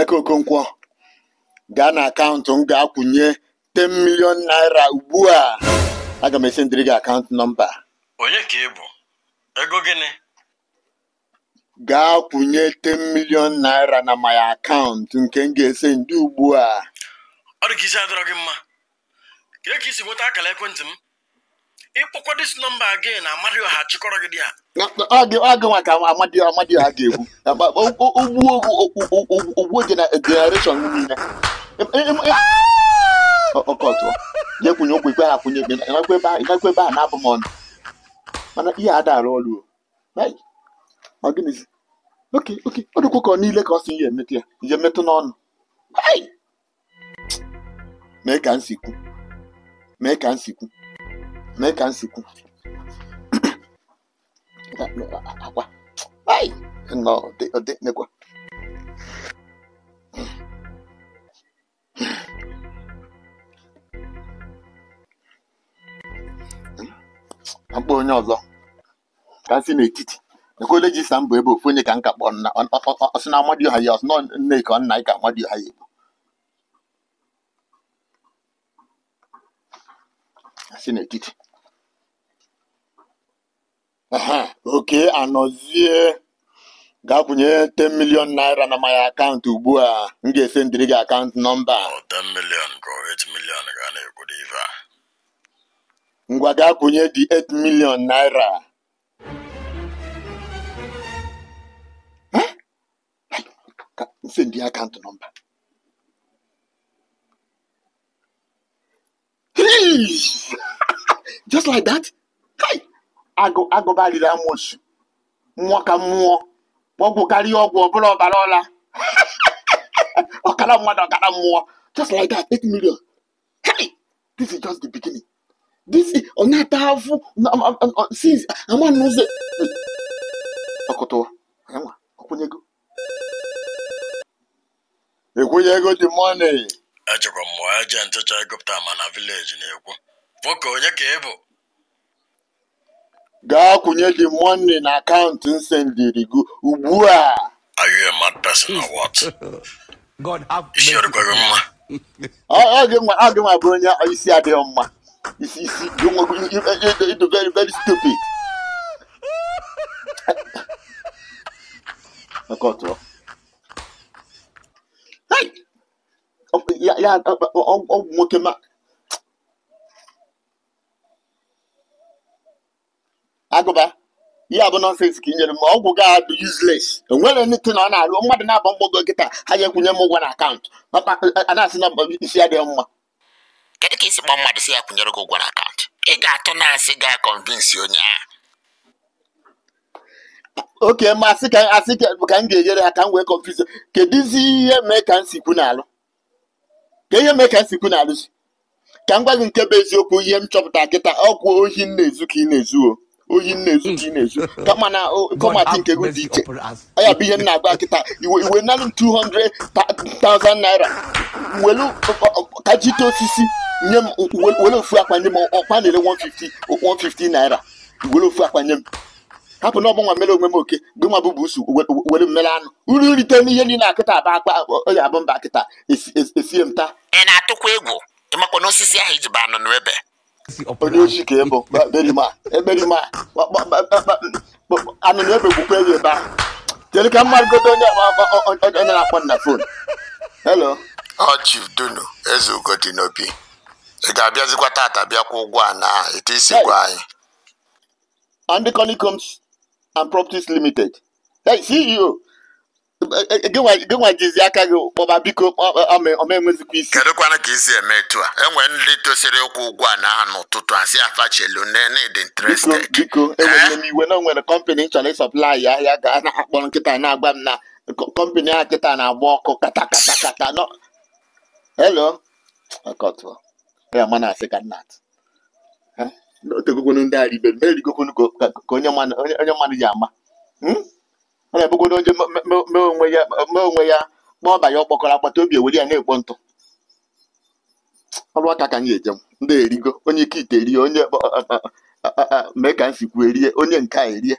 Emeka Okonkwo gaa na akaụntụ m ga-akwụnye 10 million naira ugbu a aga m ndịrị gị akaụntụ nọmba onye ka ị bụ ego gịnị gaa kwụnye 10 milion naira na my akaụntụ nke m ga-ese ndị ugbu a ọ dị ka isi adọrọ gị mma ka esi nweta akara ekwentị m ịkpọkwa dis nọmba again amadioha chịkọrọ gị dị a agịnwa ka amadio amadio ha ga-egbu ugbuo generation niile ọkọtụọ na-ekwunye ụkwụ ikpe ha kwunye ikpe ịgakwa ebe a na-abụ m ọnụ mana ihe adara ọrụ o oke oke ọ dịkwa ka ọ niile ka ọ si ihe emetụ ya ihe metụ n'ọnụ mee ka nsikwu mee ka nsikwu mee ka m sikwu akwa nọ onye ọzọ ka m si n'etiti ekwele ji sa mbụ ebe ofu onye ka nka ka kpọrọ ọsị na amadioha ya ọsị nọ nne ka ọ nna ka amadioha ya ebu si n'etiti oke anọzie gaa kwụnye 10 million naira na my akaụntụ ugbu a m ga-ese gị akaụntụ nọmba 10 million ka ga na a ngwa gaa kwụnye dị 8 million naira sendi akaụntụ nọmba just like that agụbaliri amoosu mmụọ ka mmụọ ọgwụ karịa ọgwụ ọbụla ọbara ọla ọkara mmadụ ọkara mmụọ just like that 8 million this is just the beginning this ma vileji na-ekwu onye ka ị Gaa kwụnye the money na akaụntụ m gị ugbu a. Are you a mad person or what? isi mma. gị nwa bụrụ onye isi adịghị mma. Isi isi very very stupid. Ya nwoke ma. agụba Ihe bụ nọnsens ka i nyere m ọgwụ gị adụ yuzles enwere na ọ na-arụ mmadụ na-aba mgbago nkịta ha ya ekwunye m ụgwọ na akaụntụ anasị na-asị na isi adịghị mma kedu ka isi kpọọ mmadụ si ya kwụnyere gị ụgwọ na akaụntụ ị ga-atụ na asị ga kọnvinsi onye ahụ oke masị ka asị ka m ga-enyere ha ka m wee kọnvinsi kedụzi ihe mee ka m si kwu n'alụ ka ihe mee ka m si kwu n'alụ si ka m gwa gị nke bụ eziokwu ihe m chọpụta kịta ọgwụ ohi m na-ezu ka ị na-ezu oyi nna ezu ji na ezu kama na kọmatị nke ego dị iche ọya bụ ihe m na-agba kịta iwe iwe nanị 200,000 naira welu kajite osisi nye m welu ofu akpa nye m ọkwa na-ere 150 150 naira welu ofu akpa nye m hapụ na ọbụ nwa mere onwe m oke gị nwa bụ busu were mmere anụ uru nrite n'ihe niile akịta aba akpa ọya bụ mba kịta esie m taa ị na-atụkwa egwu ịmakwa n'osisi ahụ iji ba anụ n'ebe si ọpọlọ. onye ochi ka ị bụ beri ma eberi ma anụnụ ebegbukwa na-akpọ na fon helo ọ chief dunu ga-abịazikwa tata bịakwa ụgwọ a na ete isi gwa anyị Andy Conicombs and Properties Limited hey, CEO gịnwa jizi aka gị kpọba biko omenwezikwa isi kedụkwana ka isi eme etu a enwere ndị tosiri ụkwụ ụgwọ a na aha n'ụtụtụ asị afachelu dị interested biko enwere e m iwe na nwere kọmpanị chọrọ ịsọplai ahịa ga na-akpọ nkịta na-agwa m na kọmpanị a nkịta na-agba ọkụ kata kata kata nọ helo ya mana asị ka nna ndị e ka onye mmadụ ji ama hmm? ọ na-abụgodo onye mee onwe ya ma ọ banye ọkpọkọrọ akpata obi ewere ya na-ekpo ntụ ọrụ aka ka anyị ejem ndị erigo onye ike ite erie onye mee ka m sikwu erie onye nke a erie